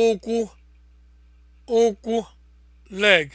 ụkwụ ụkwụ leg